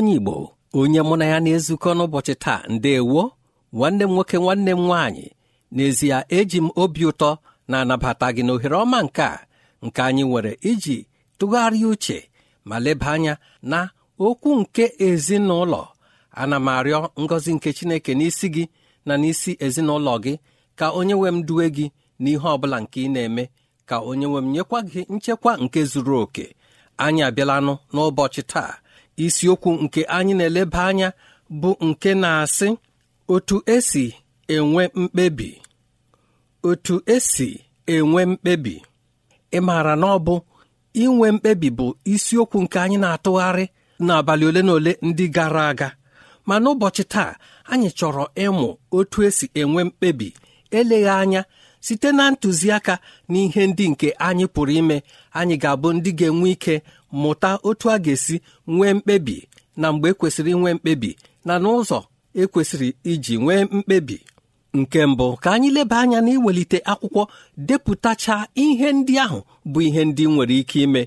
onye igbo onye mụ na ya na-ezukọ n'ụbọchị taa ndewo nwanne m nwoke nwanne m nwaanyị n'ezie eji m obi ụtọ na-anabata gị n'ohere ọma nke a nke anyị nwere iji tụgharịa uche ma leba anya na okwu nke ezinụlọ ana m arịọ ngọzi nke chineke n'isi gị na n'isi ezinụlọ gị ka onye nwe m duwe gị n'ihe ọ bụla nke ị na-eme ka onye nwe m nyekwa gị nchekwa nke zuru oke anyị abịalanụ n'ụbọchị taa isiokwu nke anyị na-eleba anya bụ nke na-asị otu esi enwe mkpebi otu esi enwe mkpebi ị maara na ọ bụ inwe mkpebi bụ isiokwu nke anyị na-atụgharị n'abalị ole na ole ndị gara aga ma n'ụbọchị taa anyị chọrọ ịmụ otu esi enwe mkpebi eleghị anya site na ntụziaka na ihe ndị nke anyị pụrụ ime anyị ga-abụ ndị ga-enwe ike mụta otu a ga-esi nwee mkpebi na mgbe ekwesịrị nwee mkpebi na n'ụzọ ekwesịrị iji nwee mkpebi nke mbụ ka anyị leba anya na iwelite akwụkwọ depụtacha ihe ndị ahụ bụ ihe ndị nwere ike ime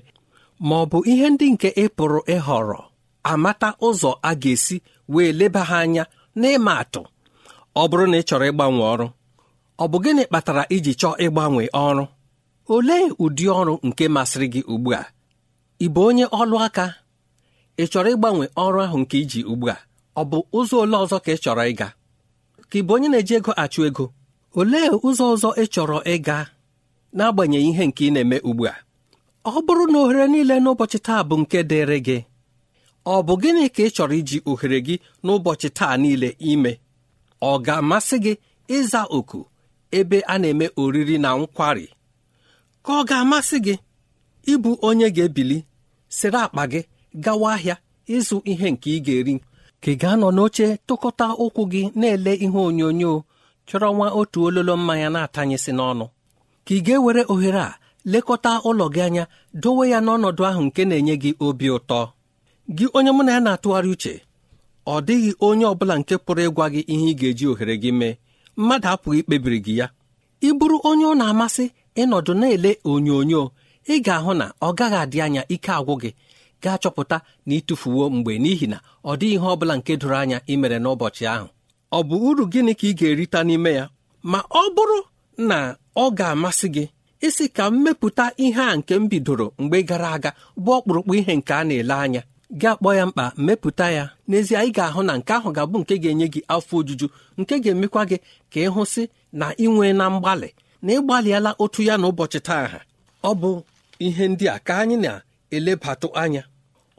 ma ọ bụ ihe ndị nke ị pụrụ ịhọrọ amata ụzọ a ga-esi wee leba ha anya n'ịma atụ ọ bụrụ na ị chọrọ ịgbanwe ọrụ ọ bụ gịnị kpatara iji chọọ ịgbanwe ọrụ olee ụdị ọrụ nke masịrị gị ugbu a ị bụ onye ọlụ aka ị chọrọ ịgbanwe ọrụ ahụ nke iji ugbu a ọ bụ ụzọ ole ọzọ ka ị chọrọ ịga ka ị bụ onye na-eji ego achụ ego olee ụzọ ọzọ ị chọrọ ịga n'agbanyeghị ihe nke ị na-eme ugbu a ọ bụrụ na ohere niile n'ụbọchị taa bụ nke dịrị gị ọ bụ gịnị ka ị chọrọ iji ohere gị n'ụbọchị taa niile ime ọ ga-amasị gị ịza oku ebe a na-eme oriri na nkwari ka ọ ga-amasị gị ịbụ onye ga-ebili sịrị akpa gị gawa ahịa ịzụ ihe nke ị ga-eri ka ị ga-anọ n'oche tụkọta ụkwụ gị na-ele ihe onyonyo chọrọ nwa otu ololo mmanya na-atanyesị n'ọnụ ka ị ga-ewere ohere a lekọta ụlọ gị anya dowe ya n'ọnọdụ ahụ nke na-enye gị obi ụtọ gị onye mụ na ya na-atụgharị uche ọ dịghị onye ọ bụla nke pụrụ ịgwa gị ihe ị ga-eji ohere gị mee mmadụ apụghị ikpebiri gị ya ị bụrụ onye ọ na-amasị ịnọdụ na-ele onyonyo ị ga-ahụ na ọ gaghị adị anya ike agwụ gị gaa chọpụta na ịtụfuwo mgbe n'ihi na ọ dịghị ihe ọ bụla nke doro anya ị mere n'ụbọchị ahụ ọ bụ uru gịnị ka ị ga-erita n'ime ya ma ọ bụrụ na ọ ga-amasị gị isi ka m mepụta ihe a nke m bidoro mgbe gara aga bụ ọkpụrụkpụ ihe nke a na-ele anya gị akpọ ya mkpa mepụta ya n'ezie ị ga-ahụ na nke ahụ ga-abụ nke ga-enye gị afọ ojuju nke ga-emekwa gị ka ị hụsị na ị nwee na mgbalị na ị otu ya na ụbọchị taa ha ọ bụ ihe ndị a ka anyị na-elebatụ anya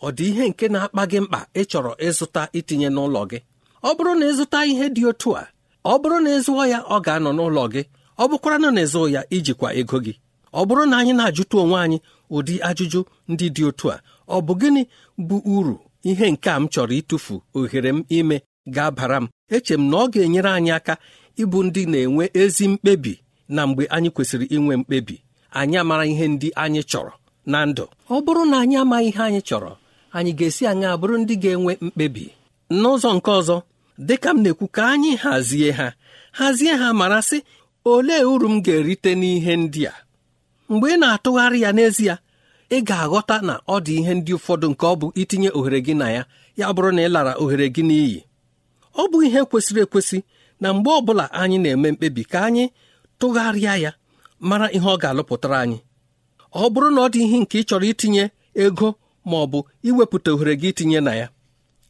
ọ dị ihe nke na-akpa gị mkpa ị chọrọ ịzụta itinye n'ụlọ gị ọ bụrụ na ịzụta ihe dị otu a ọ bụrụ na ịzụọ ya ọ ga-anọ n'ụlọ gị ọ bụkwara na ịzụ ya ijikwa ego gị ọ bụrụ na anyị na-ajụta onwe anyị ụdị ajụjụ ndị dị otu a ọ bụ gịnị bụ uru ihe nke a m chọrọ ịtụfu ohere m ime ga-abara m eche m na ọ ga-enyere anyị aka ịbụ ndị na-enwe ezi mkpebi na mgbe anyị kwesịrị inwe mkpebi anyị amara ihe ndị anyị chọrọ na ndụ ọ bụrụ na anyị amaghị ihe anyị chọrọ anyị ga-esi anyị abụrụ ndị ga-enwe mkpebi n'ụzọ nke ọzọ ka m na-ekwu ka anyị hazie ha hazie ha mara sị olee uru m ga-erite n'ihe ndị a mgbe ị na-atụgharị ya n'ezie ị ga-aghọta na ọ dị ihe ndị ụfọdụ nke ọ bụ itinye ohere gị na ya ya bụrụ na ị lara ohere gị n'iyi ọ bụ ihe kwesịrị ekwesị na mgbe ọ bụla anyị na-eme mkpebi ka anyị tụgharịa ya mara ihe ọ ga-alụpụtara anyị ọ bụrụ na ọ dị ihe nke ị chọrọ itinye ego ma ọ bụ iwepụta ohere gị itinye na ya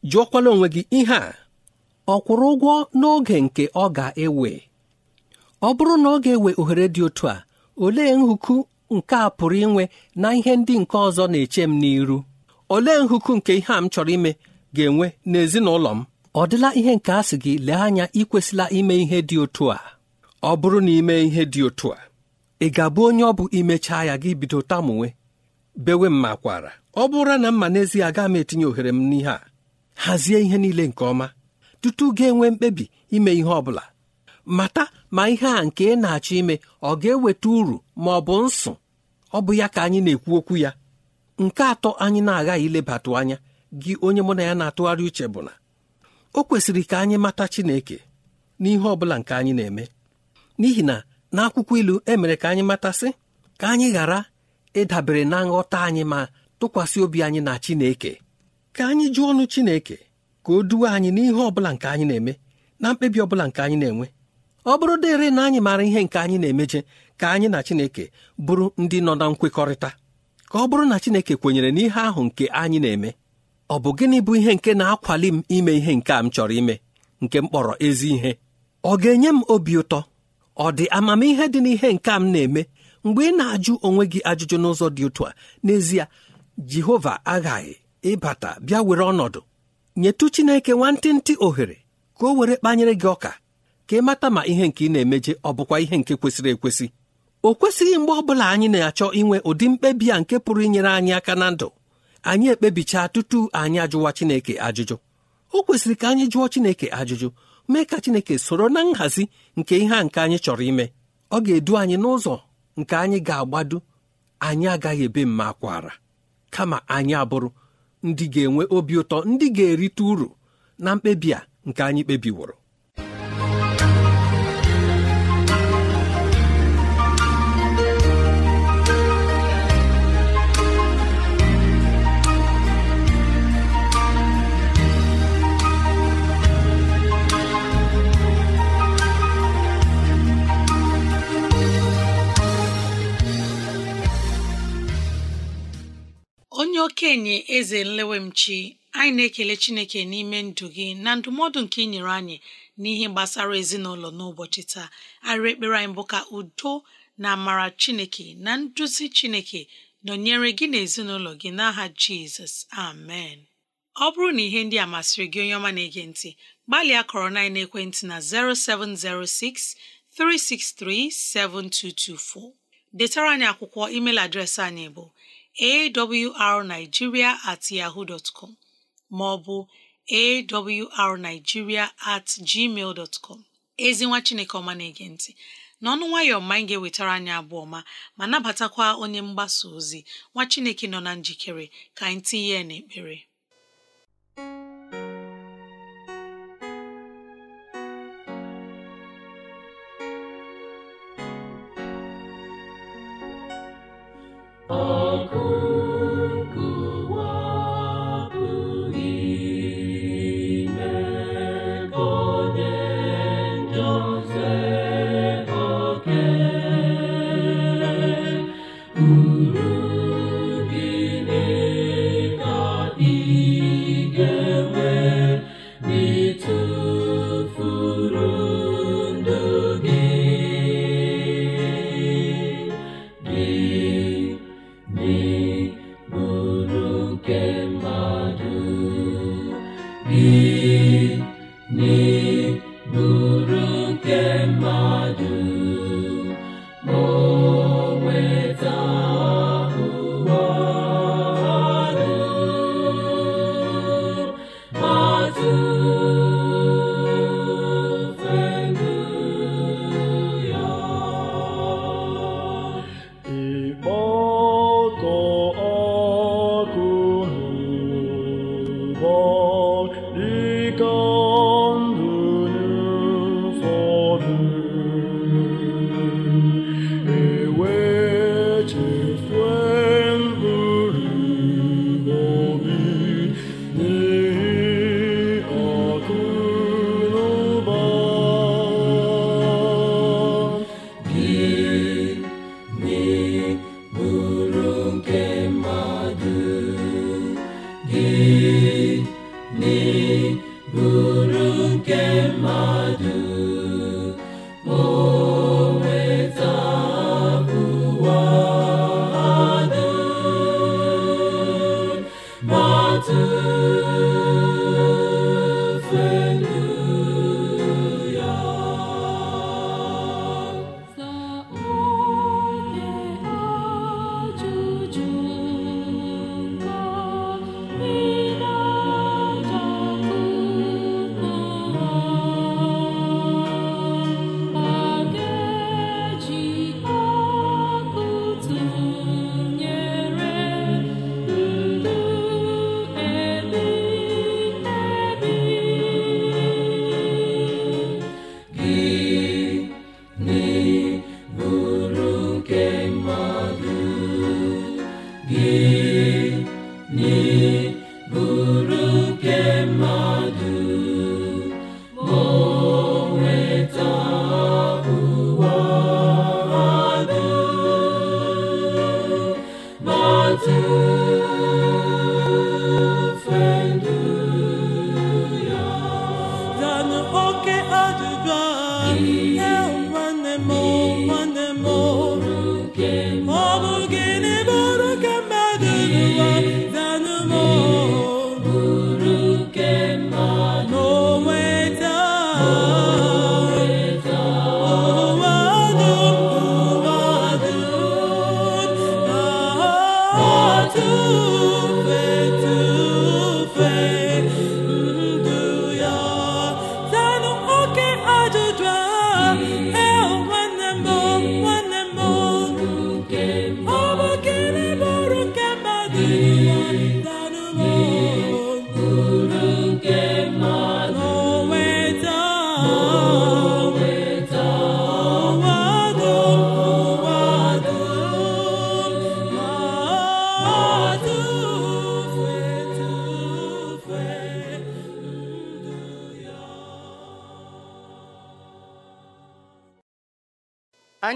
jụọkwala onwe gị ihe a ọ kwụrụ ụgwọ n'oge nke ọ ga-ewe ọ bụrụ na ọ ga-ewe ohere dị otu a olee nhuku nke a pụrụ inwe na ihe ndị nke ọzọ na-eche m n'iru olee nhụku nke ihe a m chọrọ ime ga-enwe n'ezinụlọ m ọ dịla ihe nke a sị gị lee anya ikwesịla ime ihe dị otu a ọ bụrụ na ime ihe dị otu a ị ga-abụ onye ọ bụ imechaa ya gị bido tamunwe bewe m makwara ọ bụrụ na mma n'ezie agaghị m etinye ohere m n'ihe a hazie ihe niile nke ọma tutu ga-enwe mkpebi ime ihe ọ bụla mata ma ihe a nke ị na-achọ ime ọ ga-eweta uru ma ọ bụ nsụ ọ bụ ya ka anyị na-ekwu okwu ya nke atọ anyị na-aghaghị ilebatụ anya gị onye mụ na ya na-atụgharị uche bụ na o kwesịrị ka anyị mata Chineke n'ihe ọ bụla nke anyị na-eme n'ihi na n'akwụkwọ ilu emere ka anyị matasị ka anyị ghara ịdabere na nghọta anyị ma tụkwasị obi anyị na Chineke ka anyị jụọ ọnụ Chineke ka o duwe anyị n'ihe ọ bụla nke anyị na-eme na mkpebi ọ bụla nke anyị na-enwe ọ bụrụ dịrị na anyị maara ihe nke anyị na-emeje ka anyị na Chineke bụrụ ndị nọ na nkwekọrịta ka ọ bụrụ na Chineke kwenyere n'ihe ahụ nke anyị na-eme ọ bụ gịnị bụ ihe nke na-akwali m ime ihe nke a m chọrọ ime nke m kpọrọ ezi ihe ọ ga-enye m obi ụtọ ọ dị amamihe dị n'ihe nke m na-eme mgbe ị na-ajụ onwe gị ajụjụ n'ụzọ dị otu a n'ezie Jehova aghaghị ịbata bịa were ọnọdụ nyetụ Chineke nwantịntị ohere ka o were kpanyere gị ọka ka ị mata ma ihe nke ị na-emeje ọ bụkwa ihe nke kwesịrị ekwesị o kwesịghị mgbe ọ bụla anyị na-achọ inwe ụdị mkpebi a nke pụrụ inyere anyị aka na ndụ anyị ekpebichaa tutu anyị ajụwa Chineke ajụjụ o kwesịrị ka anyị jụọ Chineke ajụjụ mee ka Chineke soro na nhazi nke ihe a nke anyị chọrọ ime ọ ga-edu anyị n'ụzọ nke anyị ga-agbado anyị agaghị ebe mma kwara kama anyị abụrụ ndị ga-enwe obi ụtọ ndị ga-erite uru na mkpebi a nke anyị kpebiworo okenye eze nlewemchi anyị na-ekele chineke n'ime ndụ gị na ndụmọdụ nke ị nyere anyị n'ihe gbasara ezinụlọ n'ụbọchị taa arịrị ekpere anyị bụ ka udo na amara chineke na nduzi chineke nọnyere gị na ezinụlọ gị n'aha jizọs amen ọ bụrụ na ihe ndị a masịrị gị onye ọma na-ege ntị gbalịa kọrọ na ekwentị na 0706 363 7224 detara anyị akwụkwọ email adreesị anyị bụ awrnigeria at yahoo dot com ma ọ bụ awrnigeria at gmail dot com ezi nwa Chineke ọma na-ege ntị n'ọnụ nwayọọ ma anyị ga-ewetara anyị abụọ ọma ma nabatakwa onye mgbasa ozi nwa Chineke nọ na njikere ka anyị tinye n'ekpere Oh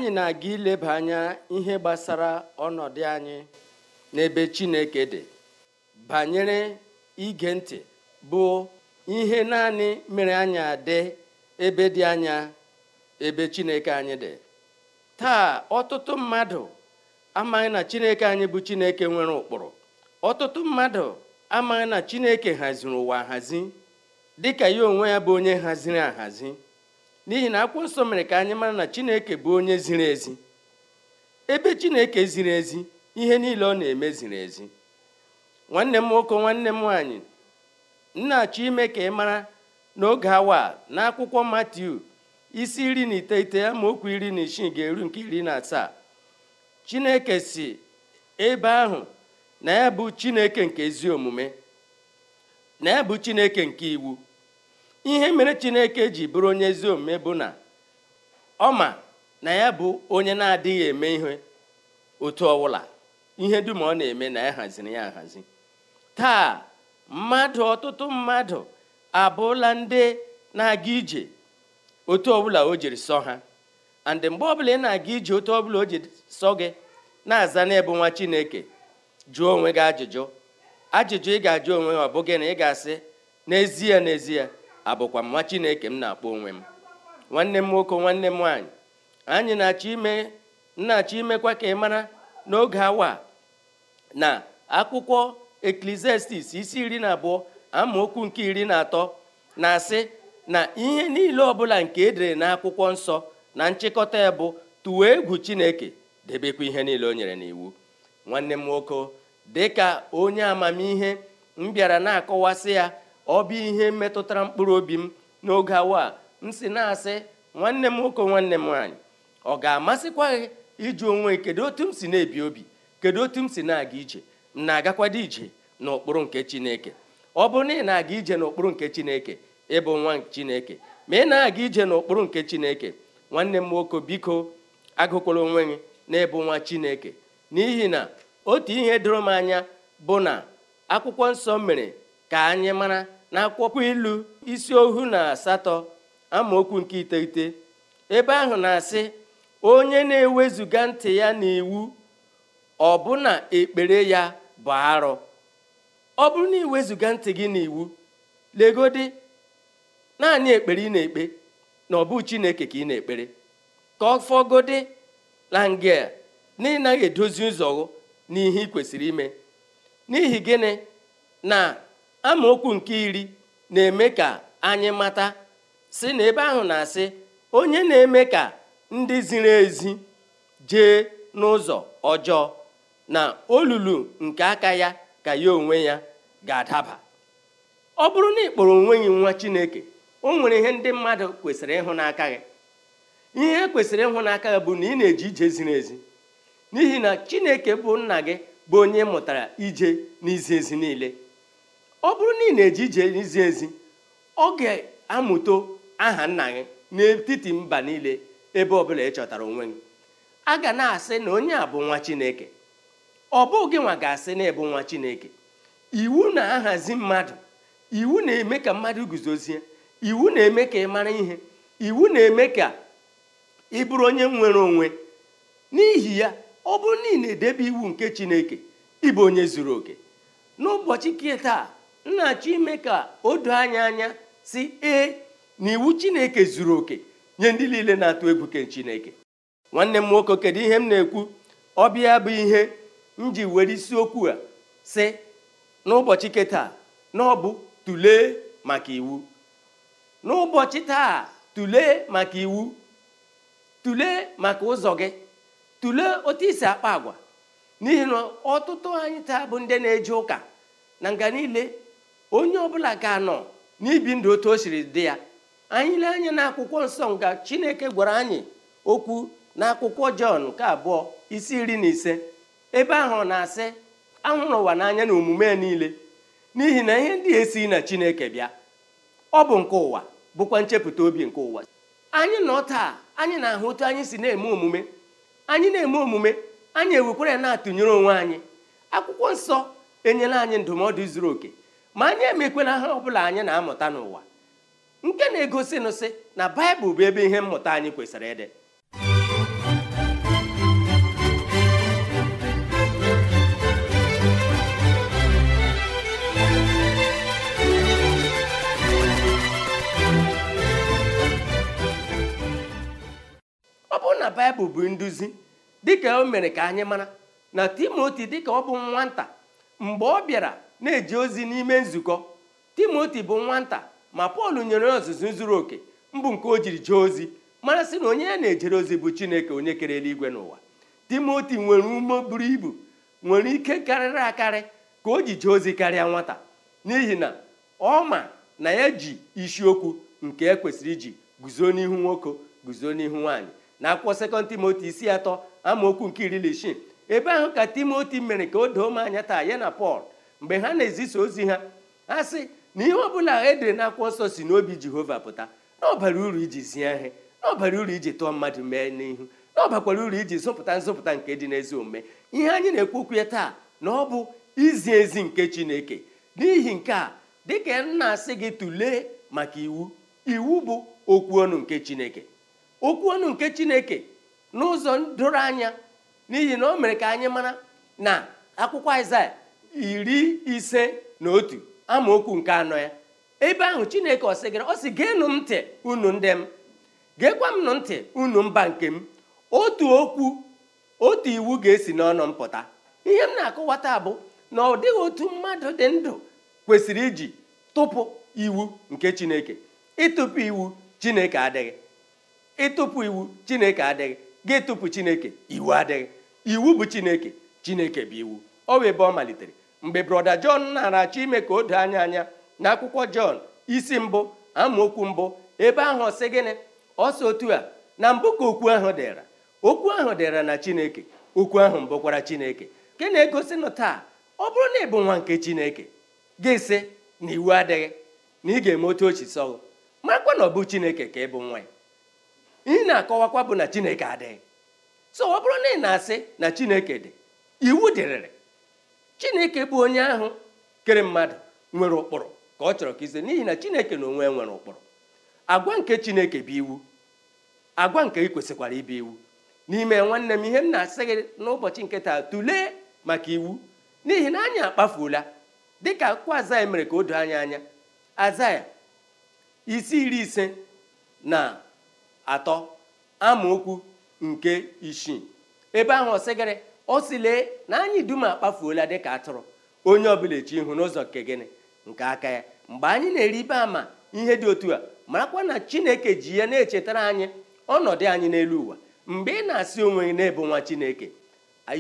anyị na-aga ileba anya ihe gbasara ọnọdụ anyị n'ebe Chineke dị banyere ige ntị bụ ihe naanị mere anya dị ebe dị anya ebe Chineke anyị dị taa ọtụtụ mmadụ amaghị na Chineke anyị bụ Chineke nwere ụkpụrụ ọtụtụ mmadụ amaghị na Chineke haziri ụwa ahazi dịka ya onwe ya bụ onye haziri ahazi n'ihi na akwụkwọ nsọ mere ka anyị mara na chineke bụ onye ziri ezi ebe chineke ziri ezi ihe niile ọ na-eme ziri ezi nwanne m nwoke nwanne m nwaanyị nna-achọ ime ka ị mara n'oge awa na akwụkwọ matiu isi iri na iteghete okwu iri na isii ga-eru nke iri na asaa chineke si ebe ahụ na ya bụ chineke nke omume na ya bụ chineke nke iwu ihe mere chineke ji bụrụ onye ezi omume bụ na ọ ma na ya bụ onye na-adịghị eme ihe otu ọwụla ihe dum ọ na-eme na ya haziri ya ahazi taa mmadụ ọtụtụ mmadụ abụọla ndị na-aga ije otu ọbụla o jiri sọ ha and mgbe ọbụla ị na-aga ije otu ọbụla o jiri sọ gị na-aza n'ebu nwa chineke jụọ onwe gị ajụjụ ajụjụ ị ga-ajụ onwe gị ọ gị na ị ga-asị n'ezie n'ezie abụkwa nwa chineke m na-akpọ onwe m nwanne m nwoke nwanne m nwaanyị anyị na-achọ ime na-achọ imekwa ka ị mara n'oge awa na akwụkwọ eklesiastis isi iri na abụọ amaokwu nke iri na atọ na-asị na ihe niile ọbụla nke edere na akwụkwọ nsọ na nchịkọta ya bụ tụwa egwu chineke debekwa ihe niile o nyere n'iwu nwanne m nwoke dịka onye amamihe m bịara na-akọwasị ya ọ bụ ihe metụtara mkpụrụ obi m n'oge awa m si na-asị nwanne m nwoke nwanne m nwaanyị ọ ga-amasịkwa gị ịjụ onwe kedu otu m si na-ebi obi kedu otu m si na-aga ije m na-agakwado ije n'ụkpụrụ nke chineke ọ bụrụ na ị na-aga ije n'ụkpụrụ nke chineke ịbụ nwa chineke ma ị na-aga ije n'ụkpụrụ nke chineke nwanne m nwoke biko agụkwala onwe gị na-ebu nwa chineke n'ihi na otu ihe doro m anya bụ na akwụkwọ nsọ mere ka anyị mara na akwụkwọ ilu isi ohu na asatọ amaokwu nke iteghete ebe ahụ na-asị onye na-ewezuga ntị ya n'iwu ọbụna ekpere ya bụ arụ ọ bụrụ na iwezuga ntị gị n'iwu legodi naanị ekpere ị na-ekpe na ọ bụ chineke ka ị na-ekpere ka ọ fọgodi lange na edozi ụzọ n'ihe ị kwesịrị ime n'ihi gịnị na amaokwu nke iri na-eme ka anyị mata si na ebe ahụ na-asị onye na-eme ka ndị ziri ezi jee n'ụzọ ọjọọ na olulu nke aka ya ka ya onwe ya ga-adaba ọ bụrụ na ịkpọrọ kpọrọ onwe gị nwa Chineke o nwere ihe ndị mmadụ kwesịrị ịhụ n'aka gị ihe e kwesịrị ịhụ n'aka gị bụ na ị na eji ije ziri ezi n'ihi na Chineke bụ nna gị bụ onye mụtara ije n'izi ezi niile ọ bụrụ na ị na-eji ije ezi ọ ga-amụta aha nna gị n'etiti mba niile ebe ọbụla ị chọtara onwe gị a ga na-asị na onye a bụ nwa chineke ọ bụghị nwa ga-asị na ịbụ nwa chineke iwu na-ahazi mmadụ iwu na-eme ka mmadụ guzozie iwu na-eme ka ị mara ihe iwu na-eme ka ị bụrụ onye nwere onwe n'ihi ya ọ bụrụ na ị na-edebe iwu nke chineke ịbụ onye zuru oke n'ụbọchị nke taa m na-achọ ime ka o doo anya anya si ee na iwu chineke zuru oke nye ndị niile na-atụ egwu ke chineke nwanne m nwoke kedu ihe m na-ekwu ọbịa bụ ihe m ji were isiokwu a si n'ụbọchị keta na ọ bụ maka iwu n'ụbọchị taa tụlee maka iwu tule maka ụzọ gị tule otu isi akpa agwa n'ihi na ọtụtụ anyị taa bụ ndị na-eje ụka na nga niile onye ọbụla ga-anọ n'ibi ndụ otu o siri dị ya anyị lee anya na akwụkwọ nsọ nga chineke gwara anyị okwu na akwụkwọ jọn nke abụọ isi iri na ise ebe ahụ na-asị ahụrụ ụwa n'anya na omume niile n'ihi na ihe ndị esighị na chineke bịa ọ bụ nke ụwa bụkwa nchepụta obi nke ụwa anyị nọ taa anyị na-ahụ otu anyị si na-eme omume anyị na-eme omume anyị ewekwara na-atụnyere onwe anyị akwụkwọ nsọ enyela anyị ndụmọdụ zuru oke ma anyị emekwe na ha ọbụla anyị na-amụta n'ụwa nke na-egosi nụsị na baịbụl bụ ebe ihe mmụta anyị kwesịrị ịdị ọ bụrụ na baịbụl bụ nduzi dịka o mere ka anyị mara na timoti dịka ọ bụ nwata mgbe ọ bịara na-eji ozi n'ime nzukọ timoti bụ nwata ma pọl nyere ya ọzụzụ zuru oke mbụ nke o jiri jee ozi marasị na onye ya na-ejere ozi bụ chineke onye kere eluigwe n'ụwa timoti nwere ume buru ibu nwere ike karịrị akarị ka o ji jee ozi karịa nwata n'ihi na ọ ma na ya ji isiokwu nke e kwesịrị iji guzo n'ihu nwoke guzo n'ihu nwaanyị na akwụkwọ sekọnd timoti isi atọ amaokwu nke iri na isii ebe ahụ ka timoti mere ka o doo m anya taa ya na pọl mgbe ha na-ezisa ozi ha ha sị na ihe ọbụla edere na akwụkwọ nsọ si n'obi jehova pụta na ọbara uru iji zie ihe na ọbara uru iji tụọ mmadụ mee n'ihu na uru iji zụpụta nzọpụta nke dị n'ezi omume ihe anyị na-ekwu okwu ya taa na ọ bụ izi ezi nke chineke n'ihi nke a dịka m na-asị gị tụlee maka iwu iwu bụ okwu ọnụ nke chineke okwu ọnụ nke chineke n'ụzọ doro anya n'ihi na o mere ka anyị mara na akwụkwọ aịzaya iri ise na otu amaokwu nke anọ ya ebe ahụ chineke ọ sị gịrị ọ sị geenụ m ntị unu ndị m geekwa m ntị unu mba nke m otu okwu otu iwu ga-esi n'ọnụ m pụta ihe m na-akọwata bụ na ọ dịghị otu mmadụ dị ndụ kwesịrị iji tụpụ iwu nke chineke ịtụpụ iwu chineke adịghị ịtụpụ iwu chineke adịghị gị tụpụ chineke iwu adịghị iwu bụ chineke chineke bụ iwu ọ bụ ebe ọ malitere mgbe brọda jọn na-aracha ime ka o doo anya anya na akwụkwọ jọn isi mbụ amaokwu mbụ ebe ahụ ọ sị gịnị ọsọ otu a na mbụ ka okwu ahụ dịra okwu ahụ dịra na chineke okwu ahụ mbụkwara chineke nke na-egosi nụ taa ọ bụrụ na ị bụ nwa nke chineke gị sị na iwu adịghị na ị ga-eme otu ochi sọgụ makwa na ọ bụ chineke ka ị bụ nwa ya ị na-akọwakwa bụ na chineke adịghị so ọ bụrụ na ị na-asị na chineke dị iwu dịrịrị chineke bụ onye ahụ kere mmadụ nwere ụkpụrụ ka ọ chọrọ ka ize n'ihi na chineke na onwe nwere ụkpụrụ agwa nke chineke bụ iwu agwa nke ị kwesịkwara ibe iwu n'ime nwanne m ihe m na-asị gị n'ụbọchị nke taa tụlee maka iwu n'ihi na anyị akpafuola dịka akwụkwọ azaya mere ka o doo anya anya azaya isi iri ise na atọ amaokwu nke isii ebe ahụ ọsịgịrị ọ si na anyị dum akpafuola dịka atụrụ onye ọbụla echi ihu n'ụzọ nke gịnị nke aka ya mgbe anyị na ibe ama ihe dị otu a marakwa na chineke ji ya na-echetara anyị ọnọdụ anyị n'elu ụwa mgbe ị na-asị onwe gị na-ebu nwa chineke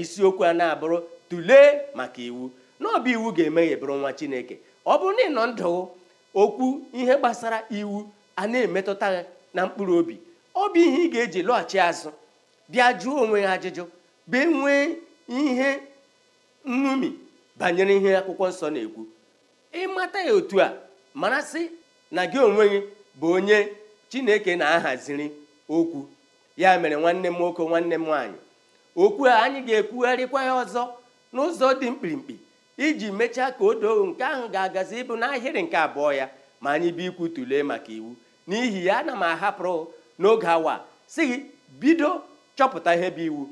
isiokwu a na-abụrụ tụlee maka iwu na ọbụ iwu ga-emeghe bụrụ nwa chineke ọ bụrụ na ị nọ ndụ okwu ihe gbasara iwu a na-emetụta na mkpụrụ obi ọ bụ ihe ị ga-eji lọghachi azụ bịa jụọ onwe ha ajụjụ bee nwee ihe nṅomi banyere ihe akwụkwọ nsọ na-ekwu ịmata ya otu a marasị na gị onwe gị bụ onye chineke na-ahaziri okwu ya mere nwanne m nwoke nwanne m nwaanyị okwu a anyị ga-ekwugharịkwa ya ọzọ n'ụzọ dị mkpirikpi iji mechaa ka o doo nke ahụ ga-agazi ịbụ n'ahịrị nke abụọ ya ma anyị bụ ikwu tụlee maka iwu n'ihi ya ana m ahapụrụ n'oge awa si gị bido chọpụta ihe bụ iwu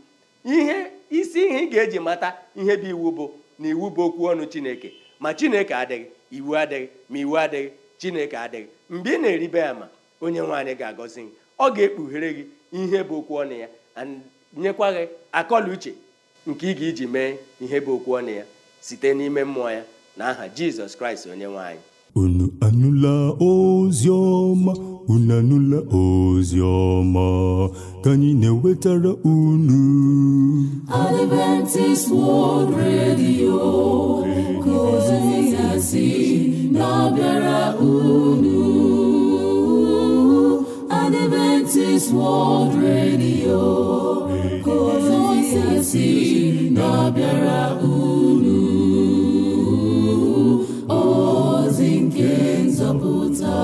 ihe isi ihe ị ga-eji mata ihe bụ iwu bụ na iwu bụ okwu ọnụ chineke ma chineke adịghị iwu adịghị ma iwu adịghị chineke adịghị mgbe ị na-eribe ya ma onye nwaanyị ga-agọzi gị ọ ga-ekpughere gị ihe bụ okwu ọnụ ya nyekwa gị akọla uche nke ị ga-eji mee ihe bụ okwu ọnụ ya site n'ime mmụọ ya na aha jizọs kraịst onye nwaanyị unu anụla ozi ọma unu anụla ozi ọma ka anyị na-ewetara unu Adventist World Radio ka ozi ya si na-abịara unu Adventist World Radio ka ozi ya si na-abịara unu ozi nke nzọpụta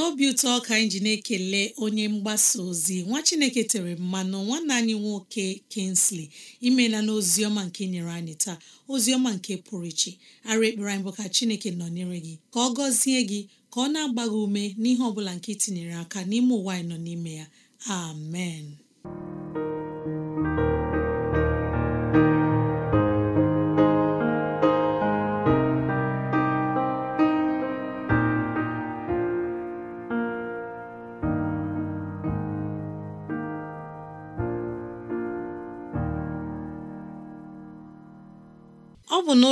n'obi ụtọ ka anyị ji na-ekele onye mgbasa ozi nwa chineke tere mmanụ nwanne anyị nwoke Kingsley imela na ọma nke nyere anyị taa ozi ọma nke pụrụ iche ara ekpere anyị bụ ka chineke nọ nọnyere gị ka ọ gọzie gị ka ọ na-agba ume n'ihe ọ bụla nke itinyere aka n'ime ụwa anyị nọ n'ime ya amen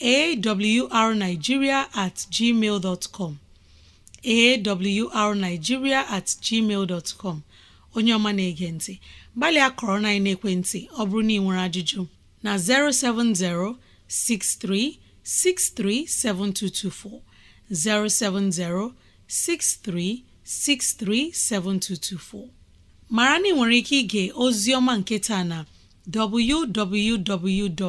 awrnigeria at gmail dot com awrnigeria at gmail dot com onye ọma na-ege ntị gbalịa kọrọ na ekwentị ọ bụrụ na ị nwere ajụjụ na 07063637224 07063637224 mara na ị nwere ike ige ozi ọma nke taa na www.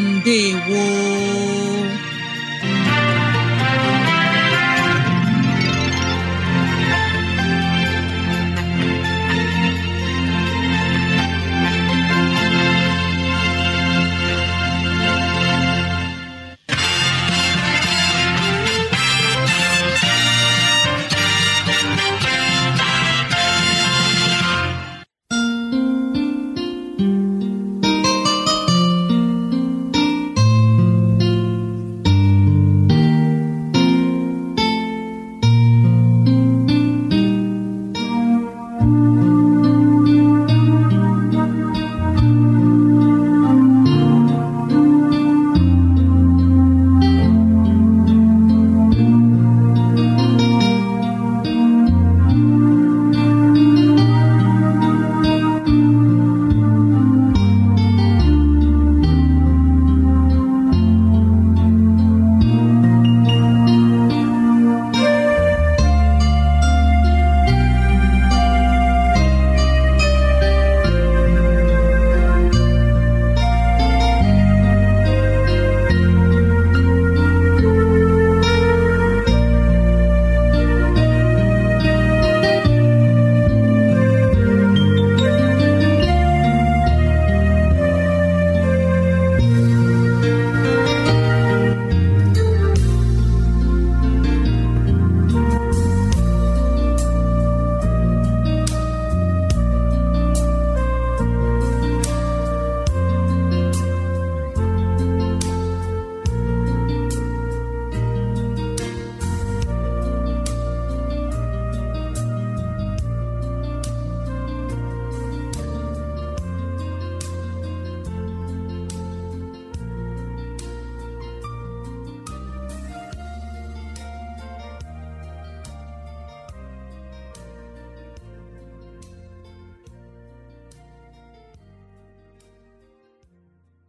wọ